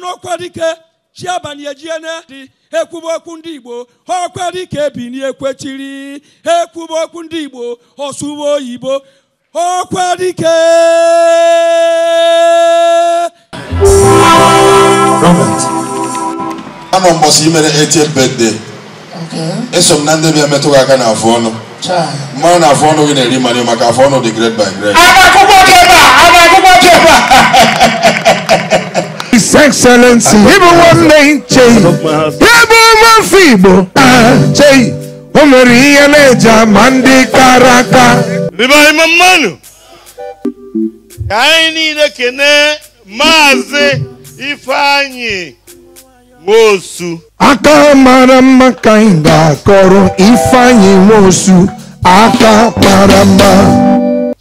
n'ọkwa dike chi abalị ejiene dị ekwuba okwu ndị igbo ọkwa dike ebini ekwechiri ekwuba okwu ndị igbo ọsụwa oyibo ọkwa ama mbọsị imere 80 birthday eso m na ndị bịa metụ aka na afụ ọnụ mmanụ na afụ ọnụ gị na-eri mmanụ maka afọ ọnụ dị grade by grade His Excellency, ịbụ nwanne Chei, ịbụ mafọ Igbo Chei, o nwere ihe na-eji ama ndị kara aka. Mbibe anyị mmanụ, ka anyị niile kene Maazị Ifeanyi nwosu aka mara mma ka anyị ga-akọrọ ifeanyị nwosu aka mara mma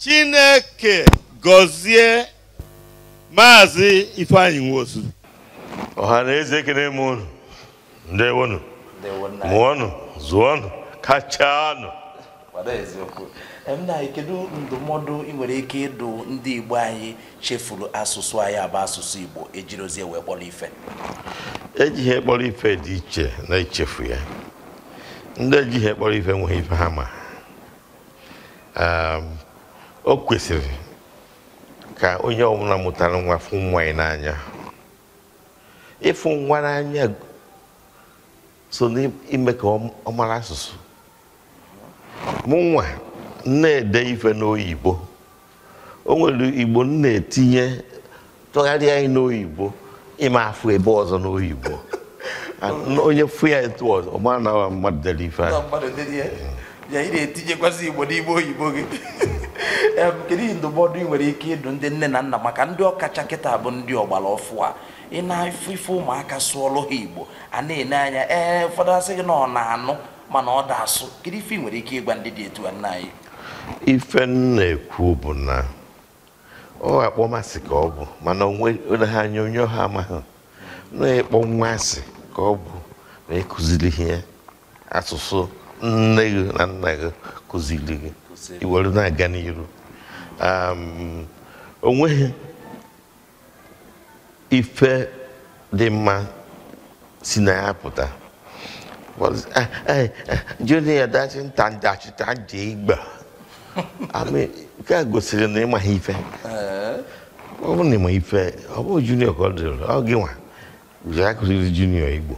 chineke gọzie maazị ifeanyị nwosu ọha na eze ekele m unu ndewonụ mụọnụ zụọnụ kachanụ kedu ndụmọdụ ị nwere ike ịdụ ndị Igbo anyị chefuru asụsụ anyị abụ asụsụ Igbo ejirozie wee kpọrọ ife ejighị ekpọrọ ife dị iche na ichefu ya ndị ejighị ekpọrọ ife nwee ife ha ma ehm, o kwesịrị ka onye ọbụla mụtara nwa fụ nwa n'anya ịfụ nwa n'anya so n'ime ka ọ mara asụsụ mụnwa na-ede ife n'oyibo o nwere igbo m na-etinye tụgharịa anyị n'oyibo ịma afụ ebe ọzọ n'oyibo onye fụ ya etu ọzọ ọma na mmadụ dere ife ya ị na-etinyekwasị igbo n'ime oyibo gị kedu ndụmọdụ ị nwere ike ịdụ ndị nne na nna maka ndị ọkacha kịta bụ ndị ọgbara ọfụ a ị na-afụ ife ụmụaka sụọlụ ha igbo a na-ene anya ee ụfọdụ asị gị na ọ na-anụ mana ọ da-asụ kedu nwere ike ịgwa ndị dị etu a nna anyị ife nna ekwu bụ na ọ akpọmasị ka ọ bụ mana ha anya onye ọha amaghị na-ekpọ nwa ka ọ bụ na ịkụziri ihe asụsụ nne gị na nna gị kụziri gị iwere na-aga n'iru onweghị ife dị mma si na ya pụta Eh, eh, eh, junior dachi ntandachi taji igba ami ka gosiri na ịma ha ife ọ bụrụ na ịma ife ọ bụrụ junior ka ọ dịrị ọ gị nwa ụzọ ya kụziri junior igbo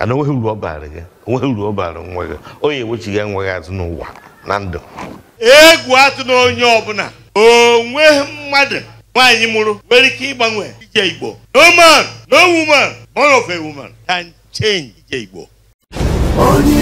ana onweghị uru ọ baara gị onweghị uru ọ baara nwa gị onye ewechighị enweghị azụ n'ụwa na ndụ egwu atụ na onye ọbụla onweghị mmadụ nwaanyị mụrụ nwere ike ịgbanwe ije igbo no man no woman born of a woman can 체인 d 이고 아니.